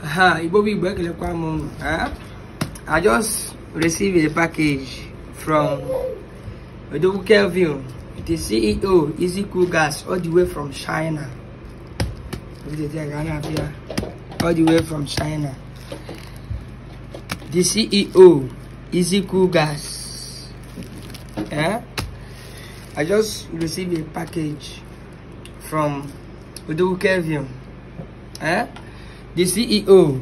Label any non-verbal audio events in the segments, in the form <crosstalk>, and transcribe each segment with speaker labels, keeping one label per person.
Speaker 1: Haha, Igbo Big Back I just received a package from Odobu Kelvin, the CEO, Easy Cool Gas, all the way from China. All the way from China. The CEO, Easy Cool Gas. Yeah? I just received a package from Odobu Kelvin. Eh? Yeah? the CEO,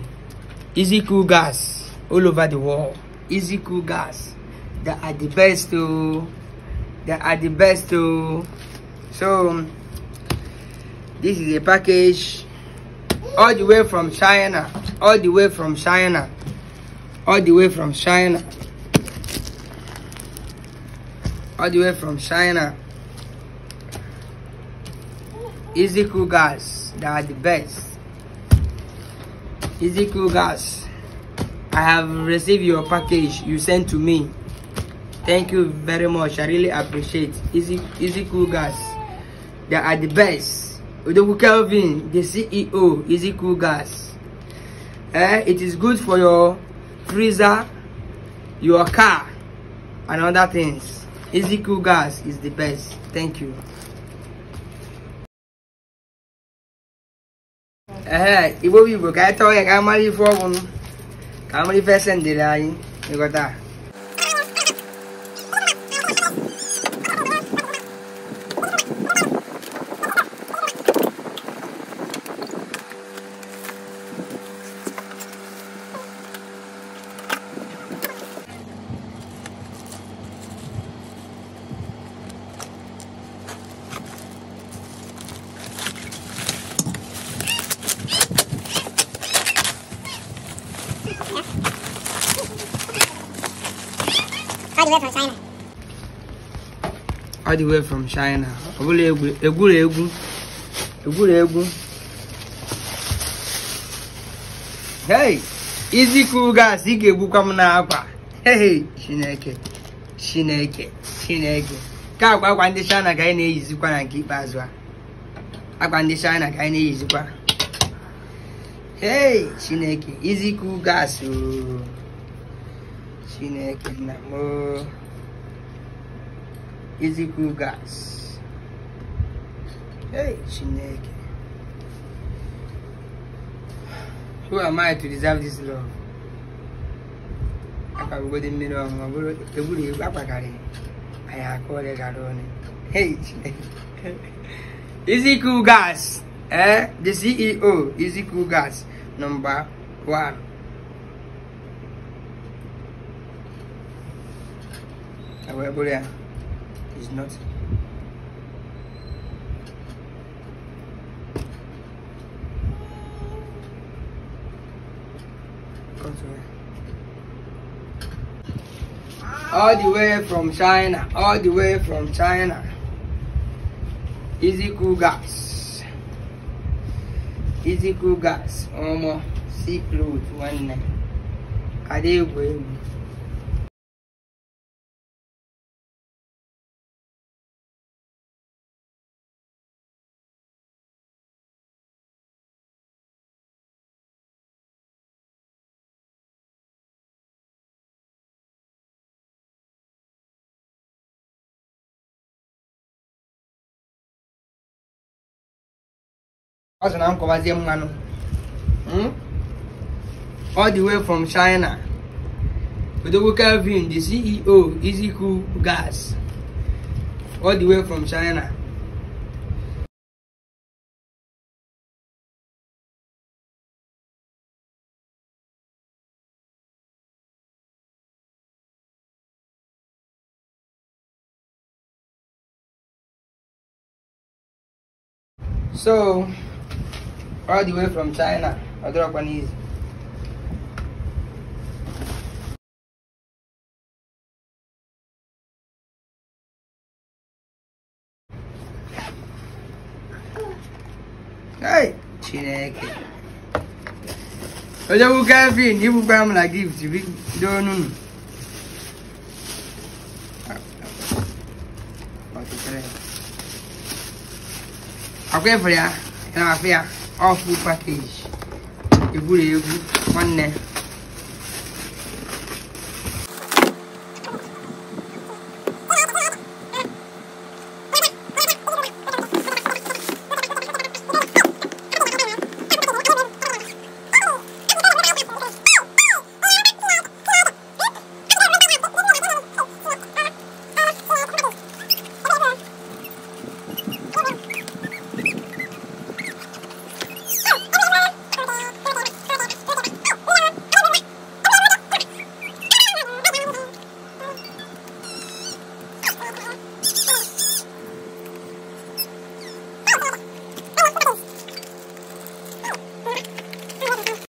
Speaker 1: Easy Cool Gas, all over the world. Easy Cool Gas, they are the best too. Oh. They are the best too. Oh. So, this is a package all the way from China, all the way from China, all the way from China, all the way from China. Easy Cool Gas, they are the best. Ezekiel Gas, I have received your package you sent to me. Thank you very much. I really appreciate Ezekiel Gas. They are the best. Odogu Kelvin, the CEO, Ezekiel Gas. Eh, it is good for your freezer, your car, and other things. Ezekiel Gas is the best. Thank you. ee igbo bụ igbo ka anyị tọọ ya ka a ife ọgwụ ka a ife ese anyị ịghọta
Speaker 2: the from China.
Speaker 1: All the way from China. egwu egwuregwu egwuregwu. Hey, iziku gas ị ga-egbukwa m n'akwa. Hey, Chineke, Chineke, Chineke. Ka akwa akwa ndị China ka anyị na-eyizikwa na nke ikpeazụ a. Akwa ndị China ka anyị na-eyizikwa. Hey, Chineke, iziku gas ooo. sine kina mo izikwu gas hey chineke who am i to deserve this love akpagogode mmiri ọṅụṅụ bụrụ egburu egwu akpakarị anyị aka ọrịa gara ọnụ hey <laughs> Easy izikwu gas eh the ceo Easy izikwu gas number one available is not all the way from China, all the way from China. Easy cool gas.
Speaker 2: Easy cool gas. Almost see clothes one night. Kadegwe. What's the name of Mano? Hmm? All the way from China.
Speaker 1: With the Kelvin, the CEO, Easy Cool Gas. All the
Speaker 2: way from China. So all the way from China. Odorokwanizi. Hey, Chineke.
Speaker 1: Oje bu Kevin, you buy me a gift. You don't know. Akwai fure ọ full package egwuregwu nwanne